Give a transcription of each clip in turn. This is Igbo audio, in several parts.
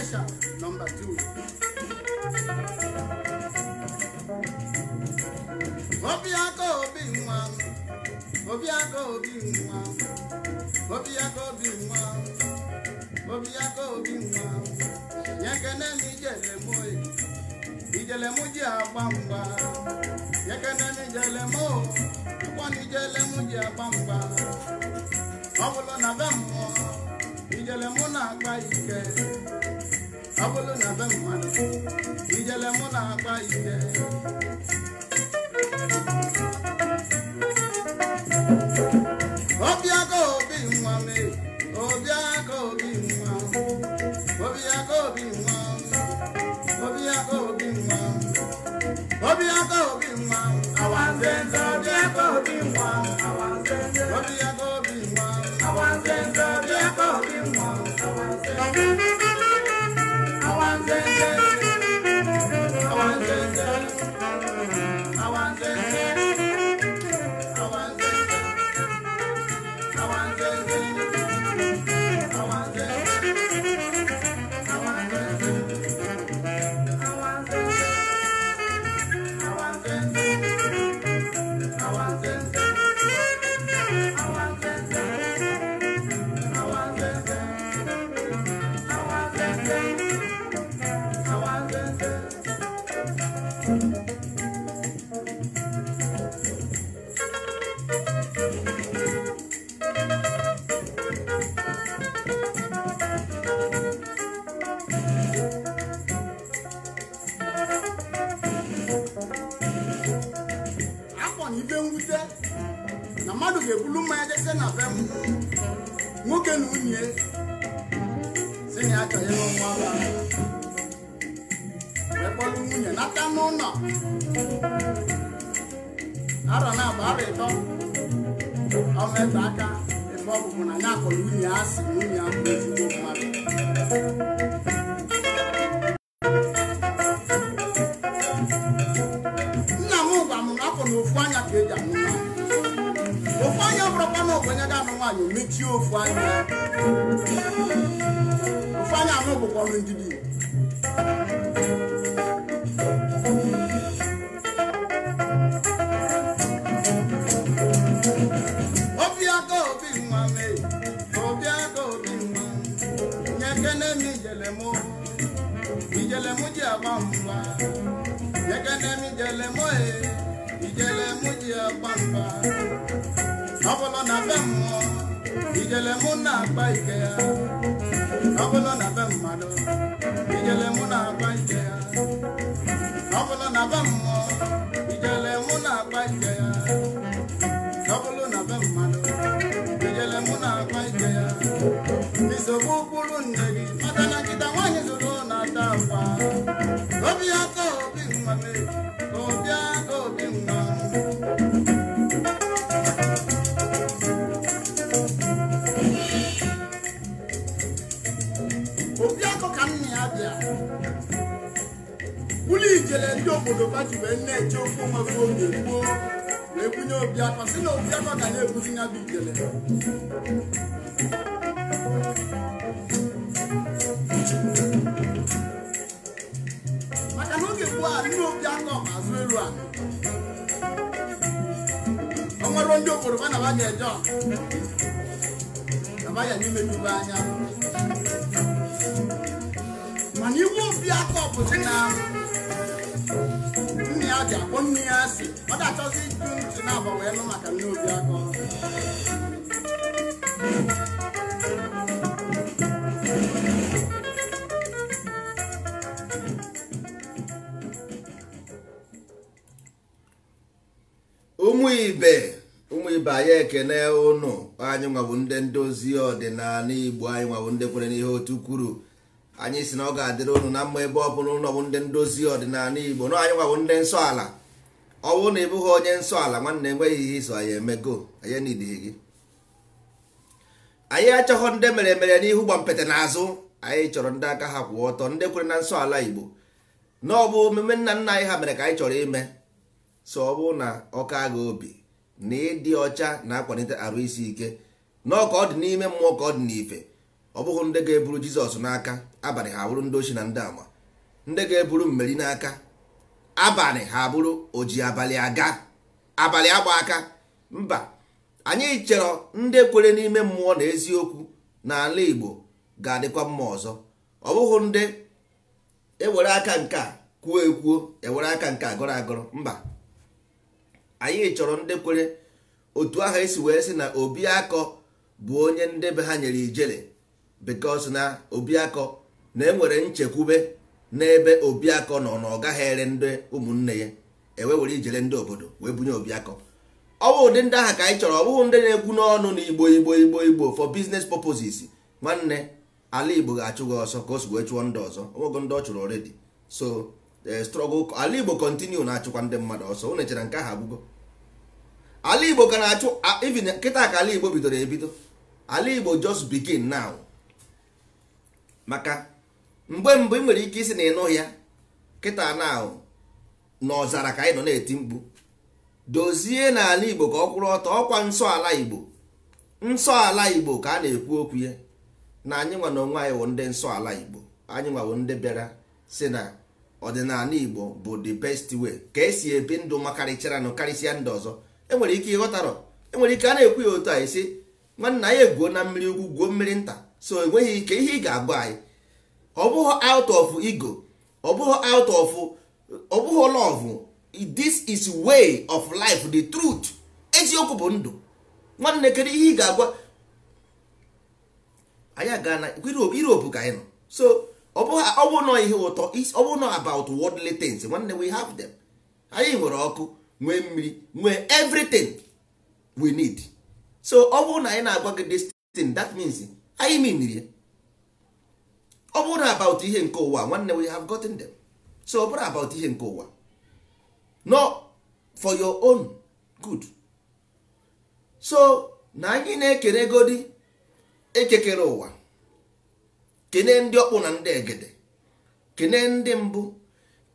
special number two. obi nwa obi nwa obi nwa obi nwa nye kene m ijele m ji agba mgba nye kene m ijele m o ji agba mgba ọ bụrụ na mmadụ ijele mụ na-akpa ite nwoke na nwunye si na ya chọrọ ịlụ nwa ba nwunye nata n'ụlọ arọ na abụ arọ ịtọ ọmeta aka ebe ọ bụ mụ na ya akọrọ nwunye ya asị na obiakọ ka nna ya bịa ụlọ ijele ndị obodo bajiwee na-eche ofe nwafe oge gboo wee bunye obiakọ si na obiakọ ka na-ebuzi ya bụ ijele maka na oge gboo a ndị obiakọ ma azụ elu a ọ nwere ndị obodo ba na ba ga-eje ọa na ya n'ime n'ube anya jakob aka mmiri na nne ya ji akpọ nne ya si ọ na achọzi ịjụ ntu na wee nụ maka nne obi aka ụmụ ibe ụmụ ibe anyị ekene ụnụ anyị nwabụ ndị ndozi ọdịnala igbo anyị nwabụ ndị kwere n'ihe otu kwuru anyị si na ọ ga-adịrị unu na mma ebe ọ bụla ụlọ bụ ndị ndozi ọdịnala igbo na anyị nwabụ ndị nsọ ala ọ bụrụ na ị bụghị onye nsọ ala nwanne enweghị ihe iso anyị emego anyị nidighị gị anyị achọghọ ndị mere mere n'ihu gbampete n'azụ anyị chọrọ ndị aka ha kwụ ọtọ ndị kwere na nsọ ala igbo na ọ bụ omume nna nna anyị ha mere ka anyị chọrọ ime so ọ bụrụ na ọka agha obi na ịdị ọcha na-akwalite arụ isi ike na ọ ka ọ dị n'ime mmụọ ka ọ dị n'ife ọ bụghị ndị ga-eburu jizọs n'aka abalị ha bụrụ ndị ochi na ndị ama ndị ga-eburu mmeri n'aka abalị ha bụrụ oji abalị aga abalị agba aka mba anyị chọrọ ndị kwere n'ime mmụọ na eziokwu n'ala igbo ga-adịkwa mma ọzọ ọ bụghị ndị ewere aka nke a kwuo ekwuo ewere aka nke agọrọ agọrọ mba anyị chọrọ ndị kwere otu ahụ esi wee sị na obi akọ bụ onye ndị be ha nyere ijele because na obiakọ na-enwere nchekwube n'ebe obiakọ nọ na ọ ere ndị ụmụnne ya ewe were ijere ndị obodo wee bunye obiakọ ọ bụ ụdị ndị ahụ ka anyị chọrọ ọ bụghị ndị na-ekwu n'ọnụ na igbo igbo igbo igbo for business purposes nwanne ala igbo ga-achụ ọsọ ka o si wee chụọ ndị ọzọ ọnwego ndị ọ chụrụ already so e, struggle ala igbo continue na-achụkwa ndị mmadụ ọsọ o nechara nke ahụ agwụgo ala igbo ka na-achụ kịta ka ala igbo bidoro ebido ala igbo just bigin now maka mgbe mbụ ị nwere ike isi na ịnụ ya kịta na ahụ n'ọzara ka anyị nọ na-eti mkpu dozie n'ala igbo ka ọ kwụrụ ọtọ ọkwa nsọ ala igbo nsọ ala igbo ka a na-ekwu okwu ya na anyị nwa na onwe anyị wụ ndị nsọ ala igbo anyị nwa ndị bịara si na ọdịnala igbo bụ the best way ka esi ebi ndụ nụ karịsịa ndị ọzọ enwere ike ịghọtarọ enwere ike a na-ekwu ya otu a esi nwanna anyị egwuo na mmiri ukwu gwuo mmiri nta so enweghị ike ihe ị ga agwa anyị ọ bụghị out of ego ọ bụghị out of ọ bụghị this is way of life the truth eziokwu bụ ndụ nwanne kedu ihe ị ga-agwa anyị aga na Europe ka anyị nọ so ọ bụghị nọ ihe ụtọ ọ bụghị nọ about worldly things nwanne we have them anyị nwere ọkụ nwee mmiri nwee everything we need so ọ bụrụ na anyị na-agwa gị this thing that means anyị miniri ọ bụrụ na about ihe nke ụwa nwanne we have gotten them so ọ bụrụ about ihe nke ụwa no for your own good so na anyị na-ekere godi ekekere ụwa kene ndị ọkpụ na ndị egede kene ndị mbụ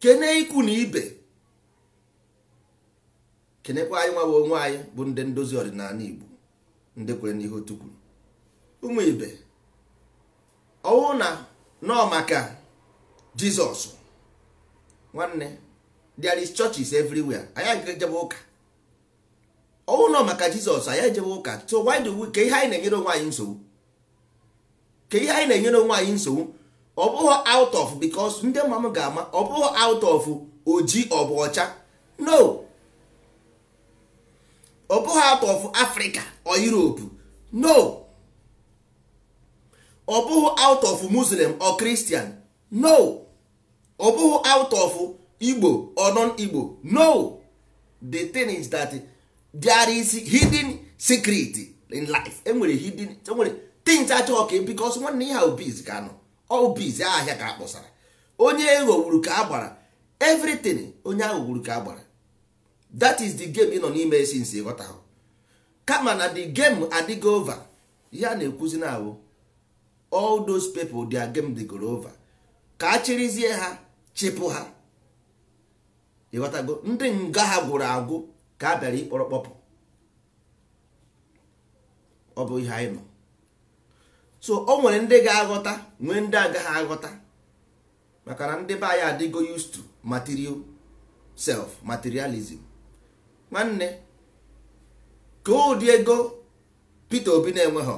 kene ikwu na ibe kenekwa anyị nwa bụ bụ ndị ndozi ọdịnala Igbo ndị kwere n'ihe otu ụmụ ibe ọwụ na nọ maka jizọs nwanne there is churches everywhere anyị agịga ejebe ụka ọwụ nọ maka jizọs anyị ejebe ụka so why do we ka ihe anyị na-enyere onwe anyị nsogbu ka ihe anyị na-enyere onwe anyị nsogbu ọ bụghị out of because ndị mma ga-ama ọ bụghị out of oji ọbụ ọcha no ọ bụghị out of Africa or Europe no ọ bụghị out of muslim or christian no ọ bụghị out of igbo or non igbo no the thing is that there is hidden secret in life enwere hidden enwere things achọghọ ka e, because nwanne ihe obiz ka nọ obiz ahịa ka akpọsara onye eghọgburu ka agbara everything onye aghọgburu ka agbara that is the game ị nọ n'ime nsi ịghọtahụ kama na the game adịgo over ya na-ekwuzi na-awụ all those people their game they go over ka a chịrịzie ha chịpụ ha ịghọtago ndị nga ha gwụrụ agwụ ka a bịara ịkpọrọ kpọpụ ọ bụ ihe anyị nọ so o nwere ndị ga-aghọta nwee ndị agaghị aghọta maka na ndị be anyị adịgo used to material self materialism nwanne ka ụdị ego Peter Obi na-enweghị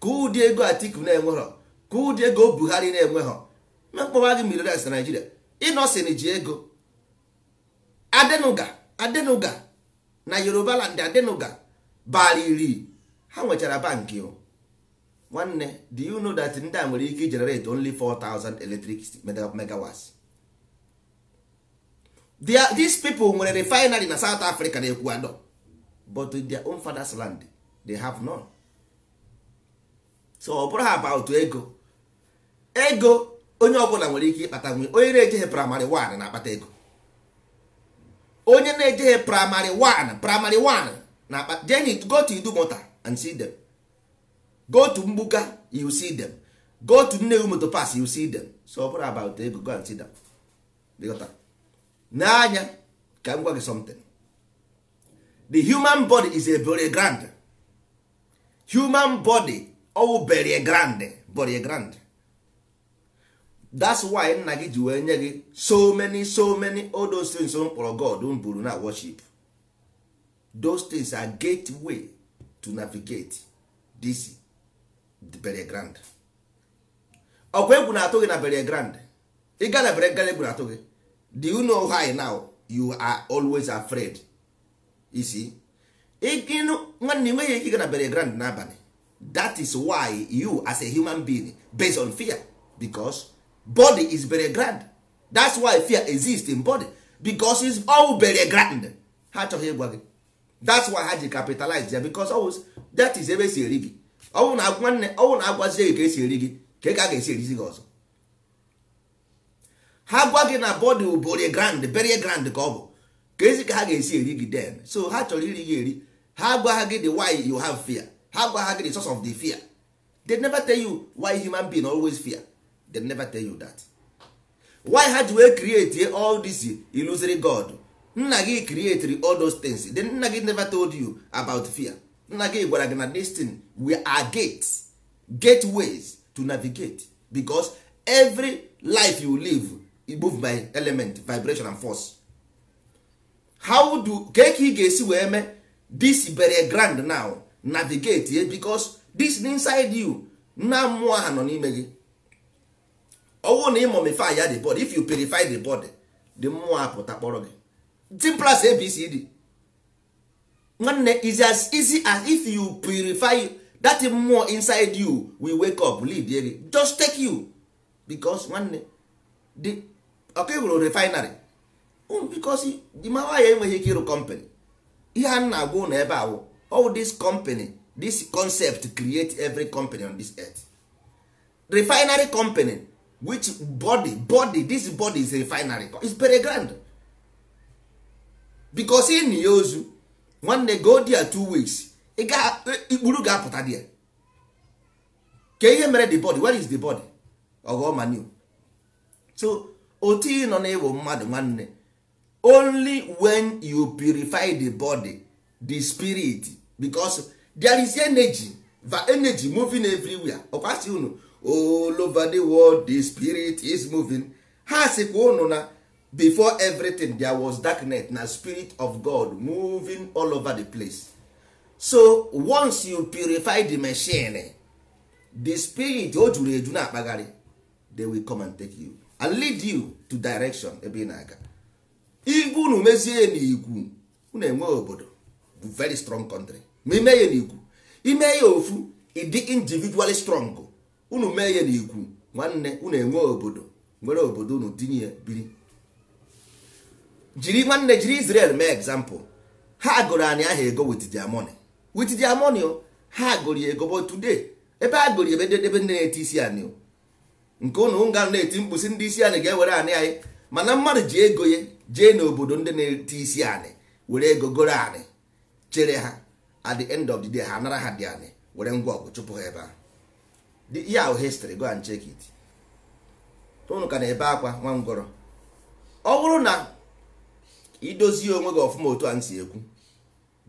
ka ụdị ego atiku na enweghọ ka ụdị ego buhari na-enweghọ mkpọwa gị miliones na naijiria ịnọsin ji ego adenuga adenuga na yoruba land adenuga bara iri ha nwechara bankị nwanne do you know that ndị a nwere ike generate only 4000 electric megawatts these people nwere refinery na south africa na ecuador but their own father's land they have none. so ọ bụrụ about ego ego onye ọbụla nwere ike ịkpata nwe onye na-ejeghe praịmarị 1 na-akpata ego onye na-ejeghe praịmarị 1 praịmarị 1 na-akpata jeni go to idumota and see them go to mgbuka you see them go to nnewi pas you see them so ọ bụrụ about ego go and see them n'anya ka m gwa gị something the human body is a very grand human body ọwụ berie grand borie grand that's why nna gị ji wee nye gị so many so many all those things m kpọrọ god mburu na worship those things are gateway to navigate this berie grand ọkwa egwu na-atụ gị na berie grand ịga na berie egwu na-atụ gị do you know why now you are always afraid you see nwanne nweghị ike ịga na berie grand n'abalị that is why you as a human being based on fear because body is very grand that's why fear exists in body because is all very grand ha achọghị ịgwa gị that's why ha ji capitalize ya because always that is ebe si eri gị na nwanne ọnwụ na agwazie gị ka esi eri gị ka ka a ga-esi erizi gị ọzọ ha gwa gị na body bere grand bere grand ka ọ bụ ka ezi ka ha ga-esi eri gị den so ha chọrọ iri gị eri ha gwa gị the why you have fear ha gwa ha gị source of the fear they never tell you why human being always fear they never tell you that why ha ji wee create all this illusory god nna gị creatri all those things then nna gị never told you about fear nna gị gwara gị na destin we are gates gateways to navigate because every life you live you e move by element vibration and force how do ka ka ị ga-esi wee mee this very grand now navigate ye because dis inside you na mmụọ ha nọ n'ime gị ọwụ na ịmomify ya the body if you purify the body the mmụọ apụta kpọrọ gị simple abc abcd nwanne is as easy as if you purify that mmụọ inside you we wake up lead gị just take you because nwanne the ọka ịhụrụ refinery because di mawa ya enweghị ike ịrụ company ihe a na-agwa ụlọ ebe awụ all this company this concept create every company on this earth refinery company which body body this body is refinery is very grand because in ya ozu nwanne go there two weeks ikpuru ga-apụta there ka ihe mere the body where is the body ogomanu so otu ị nọ na mmadụ nwanne only when you purify the body the spirit because there is energy va energy moving everywhere ọkwa unu all over the world the spirit is moving ha sikwa unu na before everything there was net na spirit of god moving all over the place so once you purify the machine the spirit o juru eju na-akpagharị they will come and take you and lead you to direction ebe ị na-aga igwe unu mezie n'igwu unu enwe obodo bu very strong country ma ime ya n'ikwu ime ya ofu ịdị individually strong unu mee ya n'ikwu nwanne unu enwe obodo nwere obodo unu tinye biri jiri nwanne jiri Israel mee example ha gụrụ anyị aha ego with their money with their oh, ha gụrụ ego but today ebe a gụrụ ebe ebe ndị na-eti isi anyị oh, nke ụnụ nga na-eti mkpụsị ndị isi anyị ga-ewere anyị anyị mana mmadụ ji ego ya jee n'obodo ndị na-eti isi anyị were ego goro anyị chere ha at the end of the day ha anara ha dị anị were ngwa ọgụ chụpụ ha ebe ahụ ihe ahụ history go and check it unu ka na-ebe akwa nwa ọ bụrụ na idozie onwe gị ọfụma otu a m si ekwu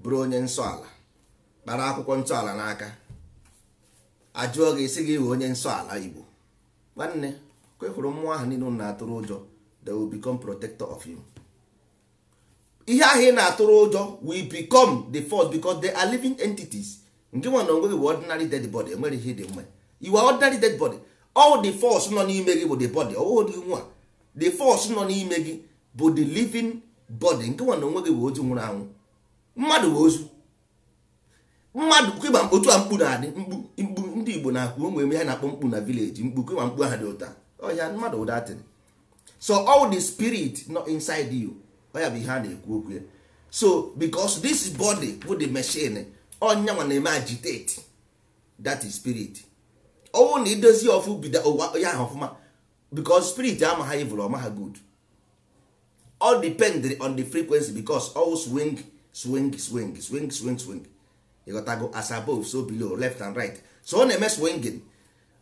bụrụ onye nsọala kpara akwụkwọ ntọala n'aka ajụọ gị isi gị we onye nsọala Igbo nwanne kwekwuru mmụọ ahụ niile na-atụrụ ụjọ the will become protector of you ihe ahụ ị na-atụrụ ụjọ will become the force because they are living entities nke nwa na onwe gị bụ ordinary dead body enwere ihe dị mma you are ordinary dead body all the force nọ n'ime gị bụ the body ọwụghị dị nwa the force nọ n'ime gị bụ the living body nke nwa na onwe gị bụ ozu nwụrụ anwụ mmadụ bụ ozu mmadụ kịba otu a mkpu na-adị mkpu ndị Igbo na-akpụ ụmụ eme ha na-akpọ mkpu na vileji mkpu kịba mkpu ahụ dị ụta ọhịa mmadụ ụdatịrị so all the spirit nọ inside you ya bụ ihe a na-ekwu okwu ya so because this body bụ the machine ọnyanwa na-eme agitate that is spirit ọnwụ na idozi ọfụ bido ụwa ya ahụ ọfụma because spirit ama ha evil ọma ha good all depend on the frequency because all swing swing swing swing swing swing ịghọtago as above so below left and right so ọ na-eme swinging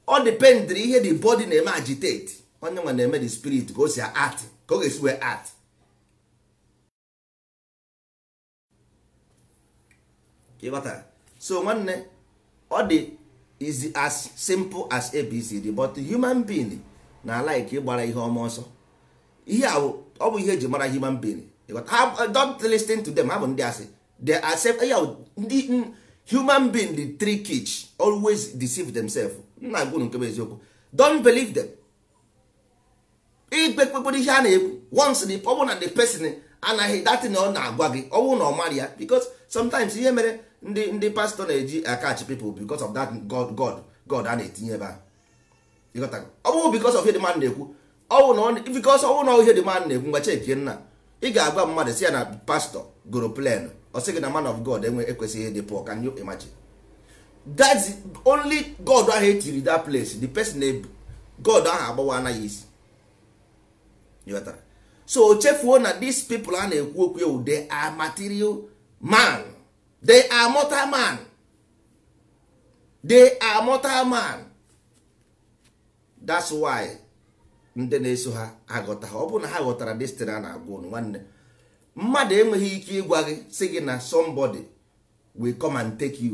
ọ depend ihe the body na-eme agitate onye nwa na-eme the spirit ka o si art ka ọ ga-esi wee art ịghọtara so nwanne ọ dị is as simple as abcd but human being na like ịgbara ihe ọma ọsọ ihe ọ bụ ihe eji mara human being uh, don't listen to them ha bụ ndị asị they accept ya ndị human being the three kids always deceive themselves nna gwunu nke bụ eziokwu don't believe them ikpekpekpere ihe a na-ekwu once ọ bụ na the person anaghị na ọ na-agwa gị bụ na ọ mara ya because sometimes ihe mere ndị ndị pastọ na-eji akach people because of that god god god a na-etinye ebe a ọ bụrụ because of ihe dị mmadụ na-ekwu ọwụ because ọwụ na ihe dị mmadụ na-ekwu ngwa cheki nna ị ga-agwa mmadụ si ya na pastọ goro plan ọ sị gị na man of god enwe ekwesịghị ịdị pụọ can you imagine that's only god ahụ etiri that place the person ebu god ahụ agbawa anaghị isi so chefuo na these people a na-ekwu okwu ewu they are material man they are mortal man they are mortal man that's why ndị na-eso ha aghọta ọ bụrụ na ha ghọtara destin a na-agwa ụnụ nwanne mmadụ enweghị ike ịgwa gị si gị na somebody will come and take you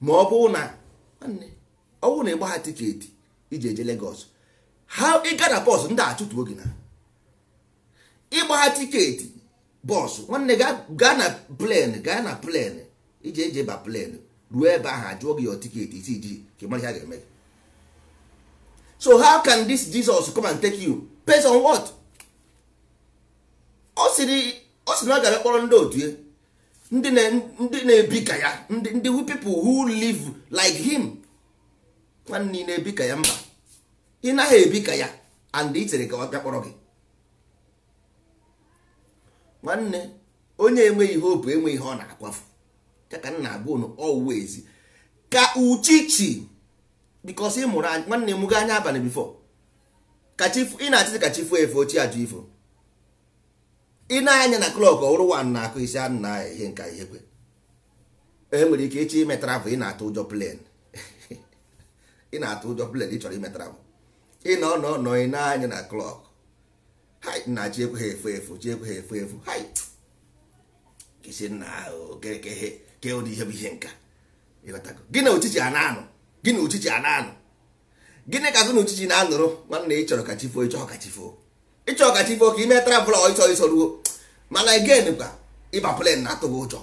ma ọ bụ na nwanne ọ bụrụ na ịgba ha tiketi iji eje Lagos ha ịga na bọs ndị achụtuo gị na ịgba ha tiketi bọs nwanne gaa na plen gaa na plen iji eji ba plen ruo ebe ahụ ajụọ gị your tiketi isi ji ka mara ihe a ga-eme so how can this Jesus come and take you based on what? ọ sịrị na ọ gara kpọrọ ndị otu ndị na-ebi ka ya ndị who people who live like him nwanne na-ebi ka ya mba ị naghị ebi ka ya and ị chere ka ọ bịa kpọrọ gị nwanne onye enweghị hope enweghị ihe ọ na-akwafu ya ka m na-agwa unu always ka uchichi because ị mụrụ nwanne m gị anya abalị bifo ị na-achịzi ka chi fuo efe ochie ajụ ifo ị na-anya na klọk ọ bụrụ wan na-akụ isi anụ na ihe nka ihe kwe e nwere ike echi ime travel ị na-atụ ụjọ plen ị na-atụ ụjọ plen ị chọrọ ime bụ ị nọ nọ nọ ị na-anya na klọk na chi ekweghị efu efu chi ekweghị efu efu isi nna ahụ kekehe kee ụdị ihe bụ ihe nka ịghọtago gịnị uchichi a na-anụ gịnị uchichi a na-anụ gịnị ka gị na na-anụrụ nwanne ịchọrọ ka chi foo ịchọrọ ka chi foo ịchọrọ ka chi foo ka ime travel ịchọ ịsọ ruo mana again kwa ịba plen na-atụ gị ụjọ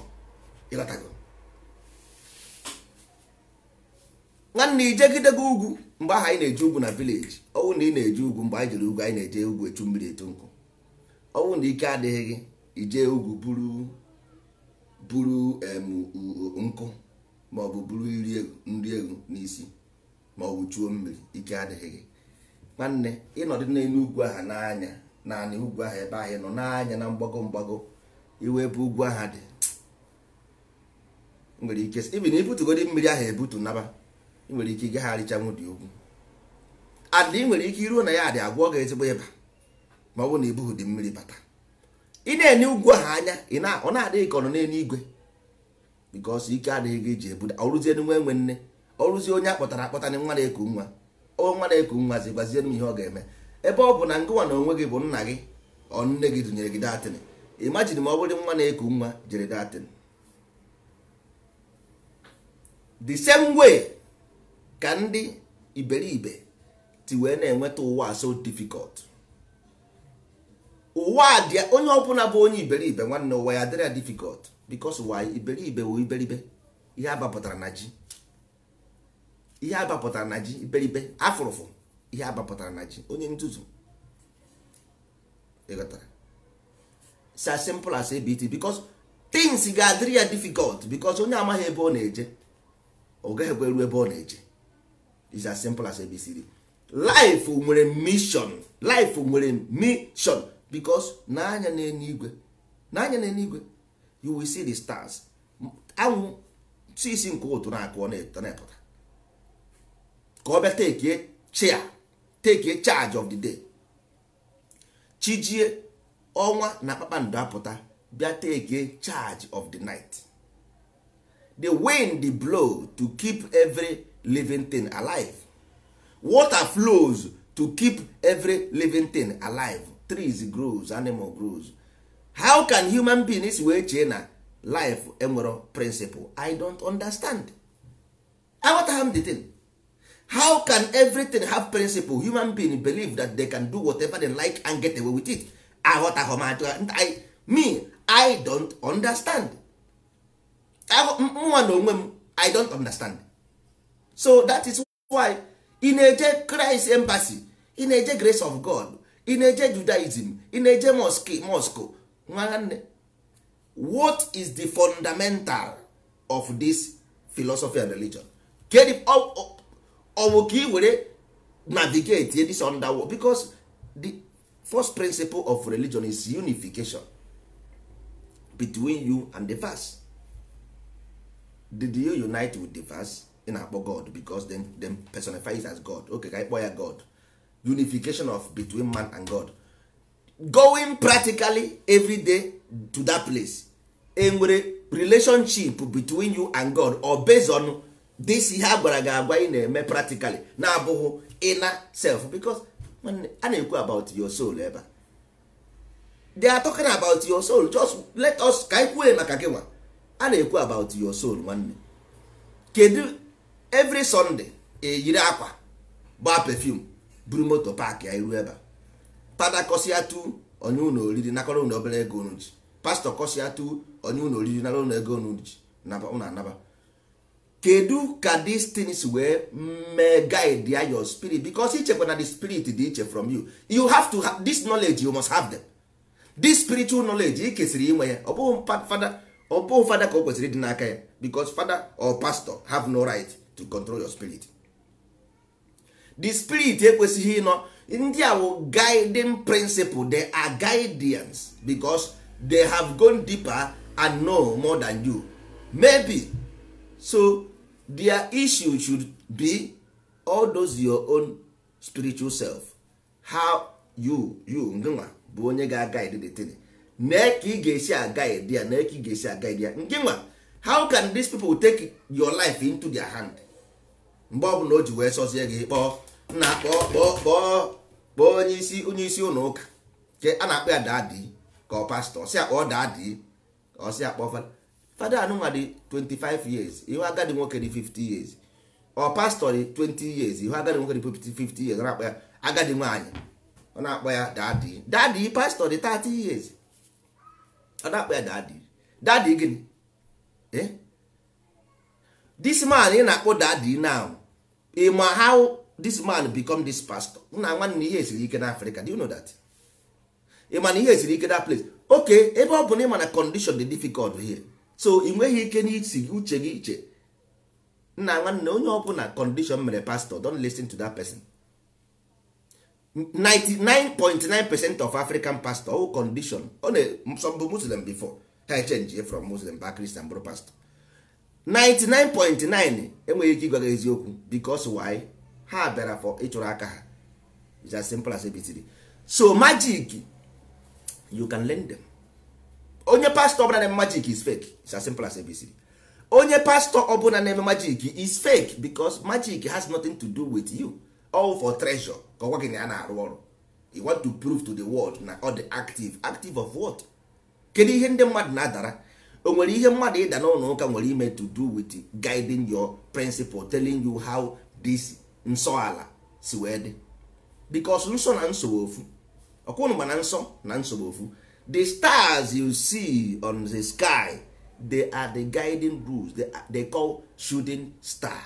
ịghọtago nwanne ijegidego ugwu mgbe ahụ anyị na eji ugwu na vileji ọnwụ na ị na eji ugwu mgbe anyị jere ugwu anyị na-eje ugwu echu mmiri etu nkụ ọnwụ na ike adịghị gị ijee ugwu buru buru nkụ maọbụ buru nri egwu n'isi maọbụ chuo mmiri ike adịghị gị nwanne ịnọdụ n'elu ugwu aha n'anya naanị ugwu aha ebe ahụ nọ n'anya na mgbago mgbago iwe ebe ugwu aha dị nwere ike ibi na ibutugodi mmiri ahụ ebutu naba nwere ike ịgagharịchanwu dị ugwu adị ị nwere ike iruo na ya dị agwọ gị ezigbo ịba ma ọ bụ na bụghị dị mmiri bata ị na-enye ugwu ahụ anya ọ na-adịghị ka ọ nọ n'elu igwe bikos ike adịghị gị ji ebuda ọrụzie nwa enwe nne ọrụzie onye akpọtara akpọta na nwa na-eku nwa nwa na-eku nwa zigwazie m ihe ọ ga-eme ebe ọ bụ na ngụwa na onwe gị bụ nna gị ọ nne gị dụnyere gị datin imajin ma ọ bụrụ nwa na-eku nwa jere datin the same way ka ndị iberibe ti wee na-enweta ụwa so difficult ụwa dị onye ọbụla bụ onye iberibe nwanne ụwa ya dịrị ya difficult because ụwa iberibe wụ iberibe ihe abapụtara na ji ihe abapụtara na ji iberibe afụrụfụ ihe abapụtara na ji onye nzuzu ịghọtara it's as simple as ABT because things ga-adịrị ya difficult because onye amaghị ebe ọ na-eje ọ gaghị ebe ọ na-eje it's as simple as ABCD life nwere mission life nwere mission because n'anya n'eluigwe n'anya n'eluigwe you will see the stars anwụ si isi nke ụtụ na-akụ na-epụta ka ọ bịa tekie chia take charge of the day chijie ọnwa na kpakpando apụta bịa tekie charge of the night the wind blow to keep every living thing alive water flows to keep every living thing alive trees grows animal grows how can human beings wee chee na life enwero principle i don't understand aghọtagha m the thing how can everything have principle human being believe that they can do whatever they like and get away with it aghọtaghọ m I, me i don't understand mụnwa na onwe m i don't understand so that is why ị eje christ embassy ị eje grace of god ị na-eje judaism ị na-eje mosque mosque nwa nwanne what is the fundamental of this philosophy and religion kedu ọ ka ị were navigate this underworld because the first principle of religion is unification between you and the verse did you unite with the verse ị na-akpọ god because them them personifies as god okay ka ya god unification of between man and god going practically every day to that place enwere relationship between you and god or based on this ihe a gwara gị agwa ị na-eme practically na-abụghị ịna self because a na-ekwu about your soul ebe they are talking about your soul just let us ka anyị kwue maka gị nwa a na-ekwu about your soul nwanne kedu every sunday eyiri akwa gba perfume buru moto paakị ya iru ebe a fada kọsịa tu onye ụlọ oriri nakọrọ ụlọ obere ego unu ji pastọ kọsịa tu onye ụlọ oriri nara ụlọ ego unu ji ụlọ anaba kedu ka these things wee mee guide ya your spirit because ichekwa na the spirit dị iche from you you have to have this knowledge you must have them this spiritual knowledge ị kesịrị inwe ya ọ fada fada ka o kwesịrị dị n'aka ya because fada or pastor have no right to control your spirit the spirit ekwesịghị ịnọ ndị a wụ guiding principle they are guidance because they have gone deeper and know more than you maybe so their issue should be all those your own spiritual self how you you nginwa bụ onye ga guide the thing mee ka ị ga-esi agaid ya mee ka ị ga-esi agaid ya ngịnwa how can these people take your life into their hand mgbe ọ na o ji wee sọzie gị kpọọ nna kpọọ kpọọ onye isi onye isi ụlọ ụka ke na-akpọ ya daadị ka ọ si akpọ daadị ọ si akpọ fada anụnwa dị 25 years ihu agadi nwoke dị 50 years ọ pastọ dị 20 years ihu agadi nwoke dị 50 years ọ na-akpọ ya ọ na-akpọ ya daadị daadị pastọ dị 30 years ọ na-akpọ ya daadị daadị gịnị eh? man ị na-akpọ daadị ma how this man become this pastor nna nwanne ihe esiri ike na Africa do you know that ịma na ihe esiri ike na place okay ebe ọ bụ na ịma na condition dị difficult here so ị nweghị ike n'isi uche gị iche nna nwanne onye ọ bụla condition mere pastor don listen to that person 99.9 percent of African pastor who condition ọ na some bụ Muslim before ha change from Muslim back Christian bụrụ pastor 99.9 enweghị ike ịgwa eziokwu because why ha bịara for ịchụrụ aka ha it's as simple as abitiri so magic you can learn them onye pastọ ọbụla na-eme magic is fake it's as simple as abitiri onye pastọ ọbụla na-eme magic is fake because magic has nothing to do with you all for treasure ka ọgwa gị na ya na-arụ ọrụ you want to prove to the world na ọ dị active active of what kedu ihe ndị mmadụ na-adara o nwere ihe mmadụ ịda n'ụlọ ụka nwere ime to do with guiding your principle telling you how this nsọ ala si wee dị because nsọ na nsogbu ofu ọkwụnụ gba na nsọ na nsogbu ofu the stars you see on the sky they are the guiding rules they, are, they call shooting star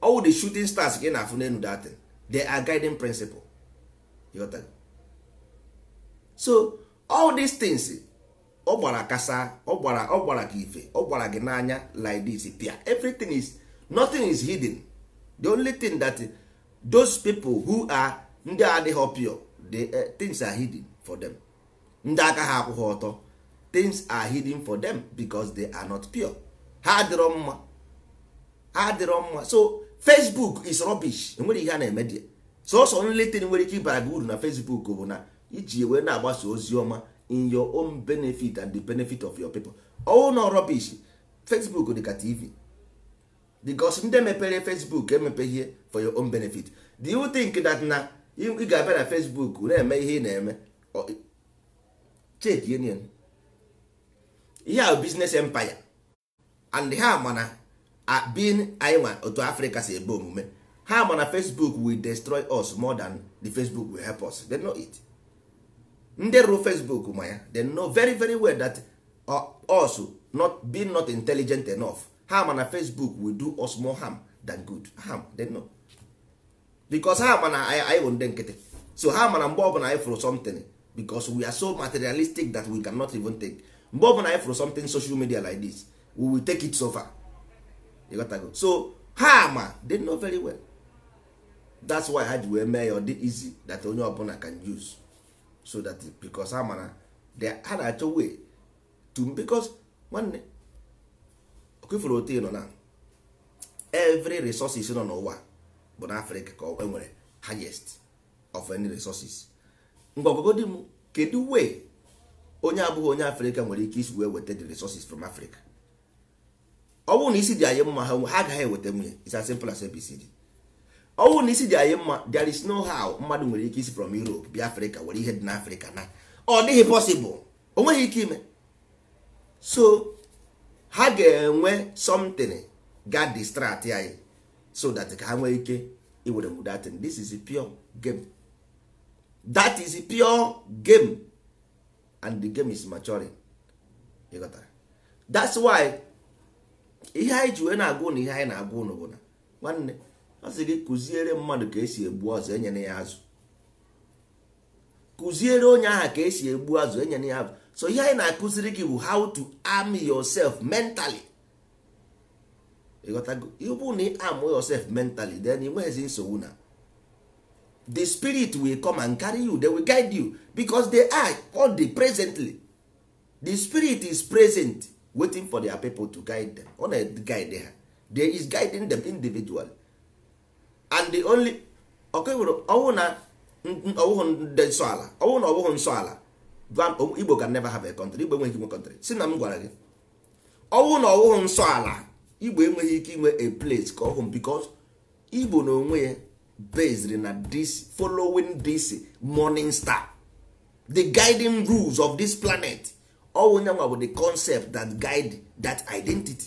all the shooting stars ka na-afụ n'elu datin they are guiding principle so all these things ọ gbara kasa ọ gbara ọ gbara gị ife ọ gbara gị n'anya like this pia everything is nothing is hidden the only thing that those people who are ndị adịghị pure the uh, things are hidden for them ndị aka ha akwụghị ọtọ things are hidden for them because they are not pure ha adịrọ mma ha adịrọ mma so facebook is rubbish enwere ihe a na-eme dị sọsọ nletin nwere ike ịbara gị uru na facebook bụ na iji wee na-agbasa ozi ọma in your own benefit and the benefit of your people all no rubbish facebook ka tv because ndị mepere facebook emepeghie for your own benefit do you think that na ị ga-abịa na facebook na-eme ihe ị na-eme check union ihe a business empire and ha mana bin anyị nwa otu africa si ebe omume ha mana facebook will destroy us more than the facebook will help us they know it. ndị rụrụ facebook ma ya they know very very well that uh, us not being not intelligent enough ha ma na facebook will do us more harm than good harm they know because ha ma na anyị bụ ndị nkịtị so ha ma na mgbe ọbụla anyị fụrụ something because we are so materialistic that we cannot even take mgbe ọbụla anyị fụrụ something social media like this we will take it so far you got to go. so ha ma ah, they know very well that's why ha ji wee mee ya ọ dị easy that onye ọbụla can use so that because ha mara a na-achọ way to because nwanne okifuru otu nọ na every resources nọ n'ụwa bụ na afrika ka e nwere highest of any resources mgbagogodị m kedu wee onye abụghị onye afrika nwere ike isi wee weta the resources from africa ọ bụrụ na isi dị anyị mma ha agaghị eweta nwunye it's as simple ọnwụ na isi dị anyị mma there is no how mmadụ nwere ike isi from Europe bịa Afrịka were ihe dị n'Afrịka na ọ dịghị possible o nweghị ike ime so ha ga-enwe something ga distract anyị so that ka ha nwee ike iwere mudatin this is a pure game that is a pure game and the game is maturing ịghọtara that's why ihe anyị ji wee na-agwa ụnụ ihe anyị na-agwa ụnụ bụ na nwanne Asị gị kụziere mmadụ ka esi egbu azụ enyere ya azụ kụziere onye aha ka esi egbu azụ enyere ya azụ so ihe anyị na-akụziri gị bụ how to arm yourself mentally ịghọtago ịbụ na arm yourself mentally then ị nweghịzi nsogbu na the spirit will come and carry you they will guide you because they are all the presently the spirit is present waiting for their people to guide them ọ na-guide ha they is guiding them individually and the only ọkụwụrụ ọwụ na ọwụhụ ndị nsọ ala ọwụ na ọwụhụ nsọ ala igbo can never have a country igbo enweghị inwe country si na m gwara gị ọwụ na ọwụhụ nsọ ala igbo enweghị ike inwe a place ka ọhụm because igbo na onwe ya based na this following this morning star the guiding rules of this planet ọwụ nyanwa bụ the concept that guide that identity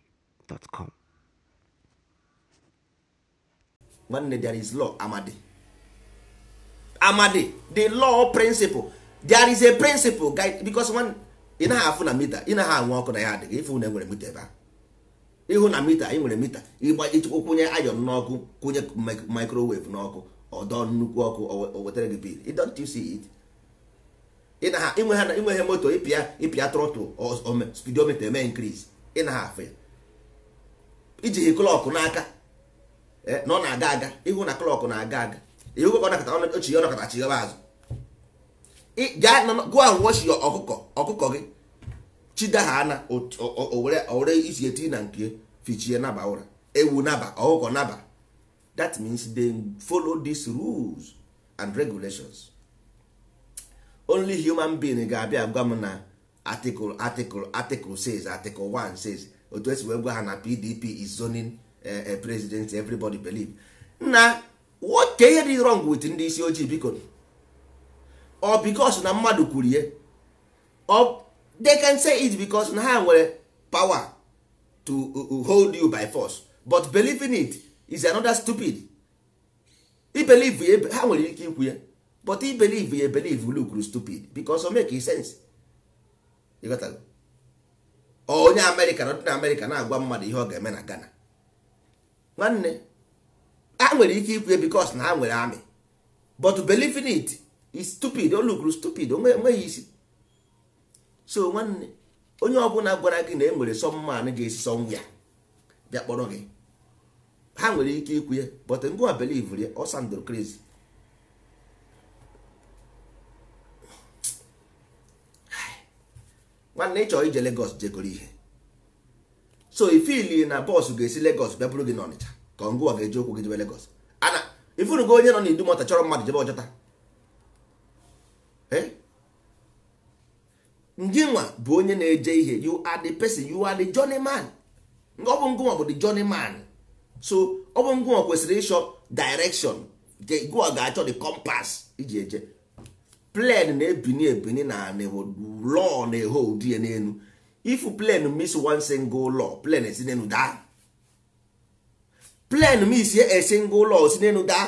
gmail.com nwanne there is law amadi amadi the law principle there is a principle guy because one ị naghị afụ na mita ị naghị anwụ ọkụ na ya adịghị ịfụ na enwere mita ebe ịhụ na mita ị nwere mita ịgba ịchekwa kwụnye ayọn n'ọkụ kwụnye microwave n'ọkụ ọdọ nnukwu ọkụ o wetara gị bil don't you see it ịnwe ha moto ịpịa ịpịa trọtụl spidomita eme nkriz ị naghị afụ ya ijighị klọkụ n'aka eh, na ọ na-aga aga ịhụ na klọkụ na-aga aga ihu ka ọ nakọta ochi ọ nakọta chighaba azụ gụọ ahụ wochi ọkụkọ ọkụkọ gị chida ha ana owere isi eti na nke fichie naba ụra ewu naba ọkụkọ naba that means they follow these rules and regulations only human being ga-abịa gwa m na article article article says article one says otu esi wee gwa ha na pdp is zoning eh, eh, president everybody believe na what dey ihe dị wrong wit ndị isi ojii biko ọ bikos na mmadụ kwuru or they can say it because na ha nwere power to uh, uh, hold you by force but believing it is another stupid ibelieve ya ha nwere ike ikwu ya but ibelieve ya ebelieve lu stupid because o make sense onye amerịka na ọdịna amerịka na-agwa mmadụ ihe ọ ga-eme na ghana nwanne a nwere ike ikwu ya bikos na ha nwere amị but believing it is stupid olukru stupid onweghị isi so nwanne onye ọ ọbụla gwara gị na e nwere sọmmanụ ga-esi sọnwụ ya bịa kpọrọ gị ha nwere ike ikwu ya but ngwa belivr ya ọsandro mana ịchọrọ ije Lagos jegoro ihe so ifili na bọọsụ ga-esi Lagos bịa bụrụ gị n'Ọnịcha ka ngụwa ga-eji okwu gị jebe Lagos ana ifurugo onye nọ n'Idumọta chọrọ mmadụ jebe Ọjọta eh? njinwa bụ onye na-eje ihe you are the person you are the man ọ bụ ngụwa bụ the man so ọ bụ ngụwa kwesịrị ịchọ direction gụwa ga-achọ the compass iji eje plen na-ebini ebini na anị lọọ na-eho ụdị ya n'elu ifu plen miss one single law plen esi n'elu daa plen miss a single law si n'elu daa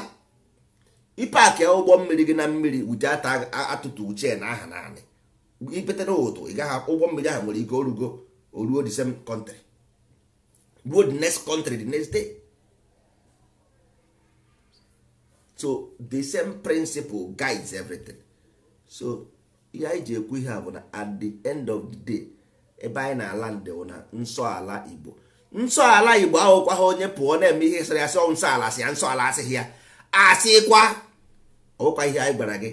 ịpakịa ụgbọ mmiri gị na mmiri wute atụtụ uche na aha naanị ipetara ụtụ ị gaghị ụgbọ mmiri ahụ nwere ike orugo oruo the same country ruo the next country the next day so the same principle guides everything. so ihe anyị ji ekwu ihe a bụ na at the end of the day ebe anyị na-ala ndewo na nsọala igbo nsọala igbo ahụkwa ha onye pụọ na-eme ihe sịrị asị nsọala asị ya nsọala asịghị ya asịkwa ọbụkwa ihe anyị gwara gị